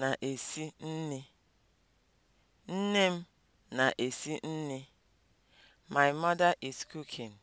na-esi Nne m na-esi nri. My mother is cooking.